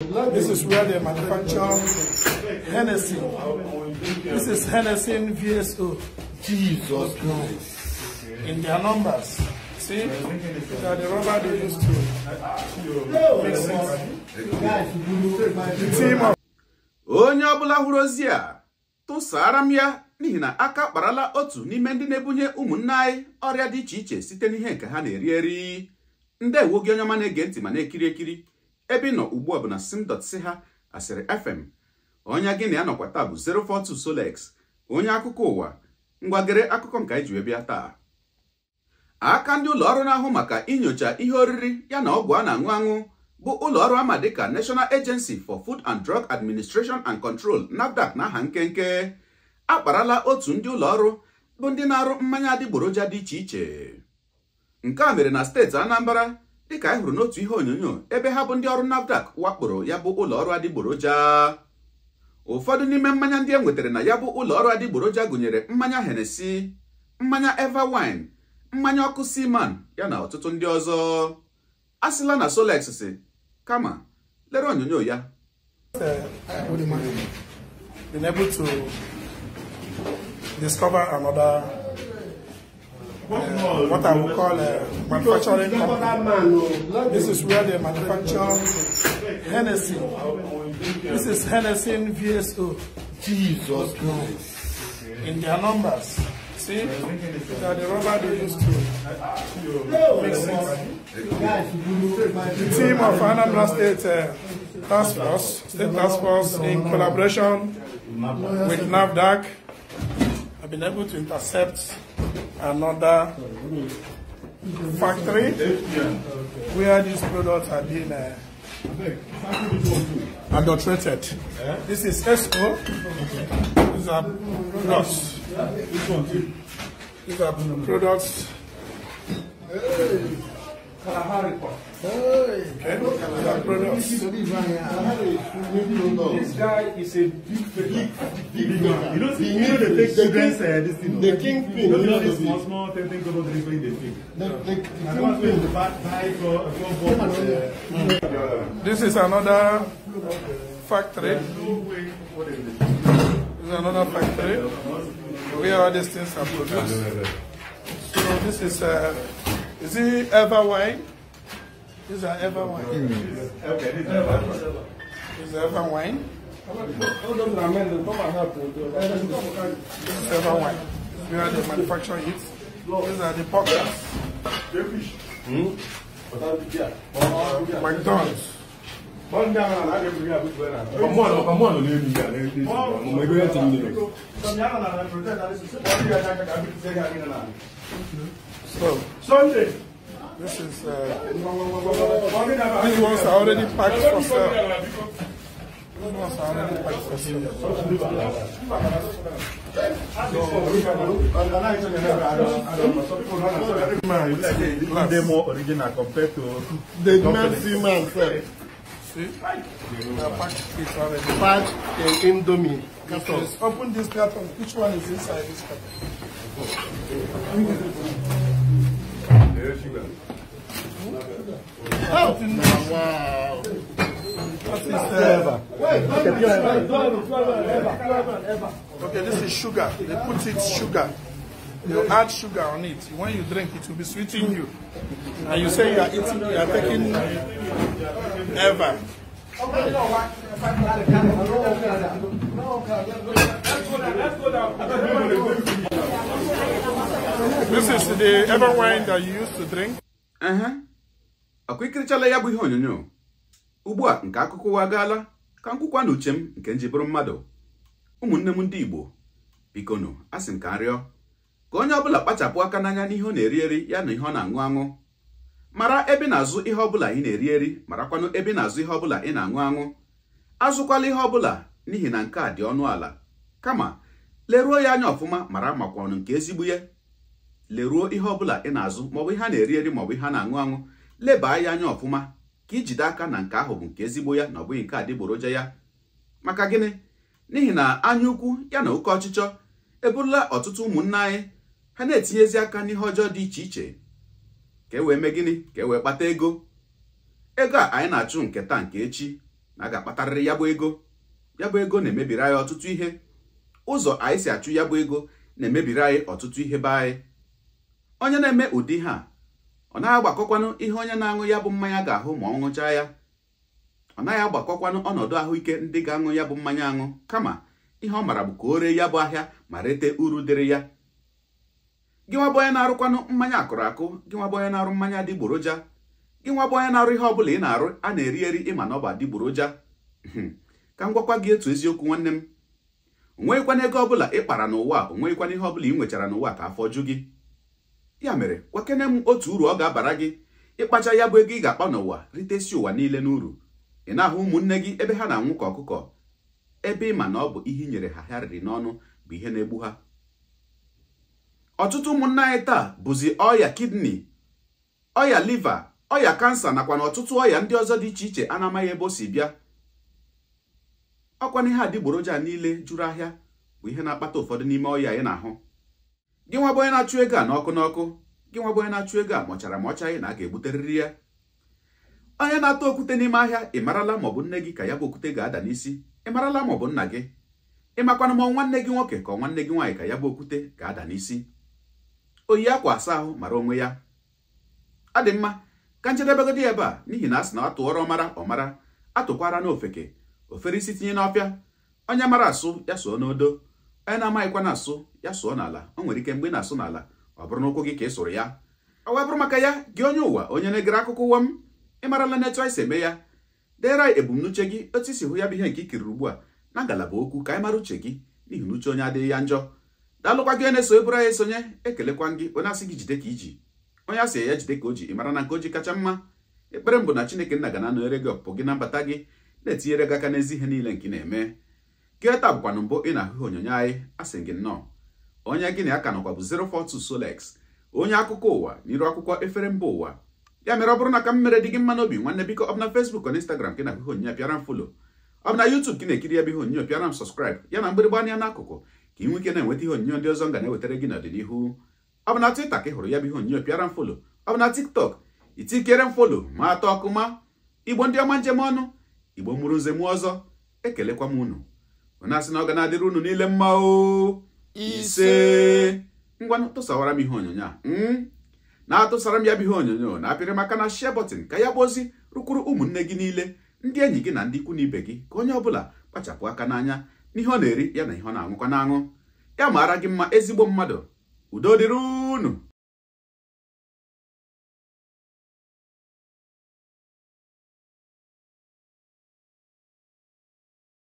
This is where they manufacture Hennessy. This is Hennessy VSO. Jesus Christ. In their numbers. See? They are the rubber they used to mix it. Onye ọbụla hụrụ ozi a tụsara m ya n'ihi na aka kparala otu n'ime ndị na-ebunye ụmụnne anyị ọrịa dị iche iche site n'ihe nke ha na-eri eri ndewo gị onye ọma na-ege ntị ma na-ekiri ekiri ebe ị nọ ugbu a bụ na sim.si ha asịrị fm onye gị na ya nọkwa taa bụ 042 Solex onye akụkọ ụwa ngwagere akụkọ nke anyị ji wee taa aka ndị ụlọọrụ na-ahụ maka inyocha ihe oriri ya na ọgwụ a na-aṅụ aṅụ bụ ụlọọrụ ama dịka National Agency for Food and Drug Administration and Control NAFDAC na aha nkenke akparala otu ndị ụlọọrụ bụ ndị na-arụ mmanya adịgboroja dị iche iche nke a mere na steeti Anambra dịka anyị hụrụ n'otu ihe onyonyo ebe ha bụ ndị ọrụ navdac wakporo ya bụ ụlọ ọrụ adịgboroja ụfọdụ n'ime mmanya ndị e nwetara na ya bụ ụlọ ọrụ adịgboroja gụnyere mmanya henesi mmanya wine mmanya ọkụ Seaman ya na ọtụtụ ndị ọzọ asịla na Solex si kama lere onyonyo ya Uh, what I would call a manufacturing company. This is where they manufacture Hennessy. This is Hennessy VSO. Jesus Christ. In their numbers. See? That the rubber they used to mix it. The team of Anambra State uh, Task Force, State Task Force, in collaboration with NAVDAC, have been able to intercept another factory where these products are being uh, adulterated. This is SO. These are products. These are products. Hey. Kalahari. This guy is a big, big, big man. You know, the, you know the big children say this thing. The kingpin. You know this small, small thing thing about delivering the thing. The, the, the kingpin. The bad guy for four This is another factory. This is another factory where all these things are produced. So this is, uh, is it ever wine? This is our ever wine. Okay, this is our ever wine. This is our ever wine. This is ever wine. We are the manufacturer it. These are the pockets. Hmm? McDonald's. Come on, come on, leave me here. Leave this. I'm going to tell you. So, Sunday. This is uh, these ones are already packed for sale. These ones are already packed for sale. So, they more original compared to the Nancy man sir. See, they are packed cakes already. Packed and indomie. open this carton. Which one is inside this carton? Thank you. Oh! Wow. Okay, this is sugar. They put it sugar. You add sugar on it. When you drink it, will be sweetening you. And you say you are eating, you are taking ever. Okay, you know what? This is the ever wine that you used to drink. Uh huh. akwa ikirichala ya bụ ihe onyonyo ugbu a nke akụkọ ụwa agaala ka nkwụkwa na uche m nke nji bụrụ mmadụ ụmụnne m ndị Igbo a sị m ka rịọ ka onye ọbụla kpachapụ aka n'anya n'ihe ọ na-eri eri ya na ihe ọ na-aṅụ aṅụ mara ebe na-azụ ihe ọbụla ị na-eri eri marakwanụ ebe na-azụ ihe ọbụla ị na-aṅụ aṅụ azụkwala ihe ọbụla n'ihi na nke a dị ọnụ ala kama leruo ya anya ọfụma mara makwanụ nke ezigbo ya leruo ihe ọbụla ị na-azụ maọbụ ihe a na-eri eri maọbụ ihe a na-aṅụ aṅụ leba ya anya ọfụma ka ijide aka na nke ahụ bụ nke ezigbo ya na ọ bụghị nke adịgboroja ya maka gịnị n'ihi na anya ukwu ya na oke ọchịchọ eburula ọtụtụ ụmụnne anyị ha na-etinyezi aka n'ihe ọjọọ dị iche iche ka e wee mee gịnị ka e wee kpata ego ego a anyị na-achụ nke taa nke echi na a ga-akpatarịrị ya bụ ego ya bụ ego na-emebiri anyị ọtụtụ ihe ụzọ anyị si achụ ya bụ ego na-emebiri anyị ọtụtụ ihe be anyị onye na-eme ụdị ha ọ naghị agbakọkwanụ ihe onye na-aṅụ ya bụ mmanya ga-ahụ ma ọ ṅụchaa ya ọ naghị agbakọkwanụ ọnọdụ ahụike ndị ga-aṅụ ya bụ mmanya aṅụ kama ihe ọ maara bụ ka o ree ya bụ ahịa ma rete uru dịrị ya gị nwa bụ onye na-arụkwanụ mmanya akụrụ akụ gị nwa bụ onye na-arụ mmanya adịgboroja gị nwa bụ onye na-arụ ihe ọ bụla ị na-arụ a na-eri eri ịma na ọ bụ adịgboroja hmm, ka m gwakwa gị etu eziokwu nwanne m onweghịkwana ego ọbụla ị kpara n'ụwa onweghịkwana ihe ọbụla ị nwechara n'ụwa ka afọ ju gị ya mere kwakene m otu uru ọ ga-abara gị ịkpacha ya bụ ego ị ga-akpa n'ụwa ritesi ụwa niile n'uru ị na-ahụ ụmụnne gị ebe ha na-anwụ ka ọkụkọ ebe ị ma na ọ bụ ihe inyere nyere ha ha riri n'ọnụ bụ ihe na-egbu ha ọtụtụ ụmụnna anyị taa bụzi ọya kidney ọya liva ọya kansa nakwa na ọtụtụ ọya ndị ọzọ dị iche iche a na-amaghị ebe o si bịa ọkwa na ihe adịgboroja niile juru ahịa bụ ihe na-akpata ụfọdụ n'ime ọya anyị na-ahụ gị nwa bụ onye na-achụ ego a n'ọkụ n'ọkụ gị nwa bụ onye na-achụ ego a mọchara ma na a ga-egbuterịrị ya onye na atụ okwute n'ime ahịa ị marala maọbụ nne gị ka ya bụ okwute ga-ada n'isi ị marala maọbụ nna gị ịmakwana ma nwanne gị nwoke ka nwanne gị nwaanyị ka ya bụ okwute ga-ada n'isi oyi akwa asa ahụ mara onwe ya ọ dị mma ka njedebegodi ebe a n'ihi na a sị na atụọrọ ọmara ọmara atụkwara n'ofeke ofere isi tinye n'ọfịa onye mara asụ ya so n'odo anyị na-amaghịkwa na-asụ ya sụọ n'ala o nwere ike mgbe ị na-asụ n'ala ọ bụrụ n'ụkwụ gị ka ị sụrụ ya ọ wee bụrụ maka ya gị onye ụwa onye na-egere akụkọ ụwa m ịmarala n'etu anyị eme ya deere anyị ebumnuche gị otu isi hụ ya bụ ihe nke ikiriri ugbu a na ngalaba okwu ka anyị mara uche gị n'ihi na uche onye adịghị ya njọ daalụkwa gị na-eso eburu anyị esonye ekelekwa gị onye asị gị jide ka iji onye asị ya jide ka o ji ịmara na nke o ji kacha mma ekpere mbụ na Chineke nna ga na-anọnyere gị ọpụpụ gị na mbata gị na-etinyere gị aka n'ezi ihe niile nke ị na-eme keta bụkwana mbụ ị na-ahụ onyonyo anyị asị gị nnọọ onye gị na ya ka nọkwa bụ 042 Solex onye akụkọ ụwa n'iru akwụkwọ efere mba ụwa ya mere ọ bụrụ na ka m mere dị gị mma n'obi nwanne biko ọ fesbuk na Facebook na Instagram ka ị na-ahụ onyonyo pịara m folo ọ bụ na na-ekiri ebe ihe onyonyo pịara m sọskraịb ya na mgbịrịgba anya n'akụkụ ka ị nwee na-enweta ihe onyonyo ndị ọzọ m ga na-ewetara gị n'ọdịnihu ọ Twitter ka ị hụrụ ya bụ ihe onyonyo pịara m folo ọ TikTok itikere m folo ma atọ ma igbo ndị ọma njem ọnụ igbo mụrụ nze mụọ ọzọ ekelekwa m unu ọ na na ọ ga na-adịrị unu niile mma o ise ngwanụ tụsawara m ihe onyonyo a hmm? na-atụsara m ya bụ ihe onyonyo na-apịrị maka na share button ka ya bụ ozi rụkwuru ụmụnne gị niile ndị enyi gị na ndị ikwu n'ibe ibe gị ka onye ọbụla kpachapụ aka n'anya n'ihe ọ na-eri ya na ihe ọ na-aṅụkwa na ya maara gị mma ezigbo mmadụ udo dịrị unu